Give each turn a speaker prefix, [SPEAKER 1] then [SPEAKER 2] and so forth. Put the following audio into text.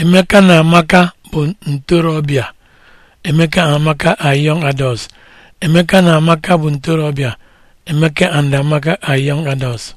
[SPEAKER 1] Emeka na Amaka bụ ntorobịa. Emeka na Amaka are young adults. Emeka na Amaka bụ ntorobịa. Emeka and Amaka are young
[SPEAKER 2] adults.